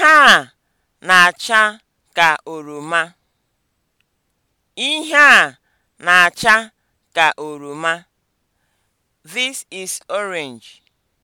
Ihe a na-acha ka oroma. Ihe This is orange.